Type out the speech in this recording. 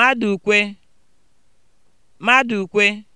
ukwe. Madụkwe ukwe.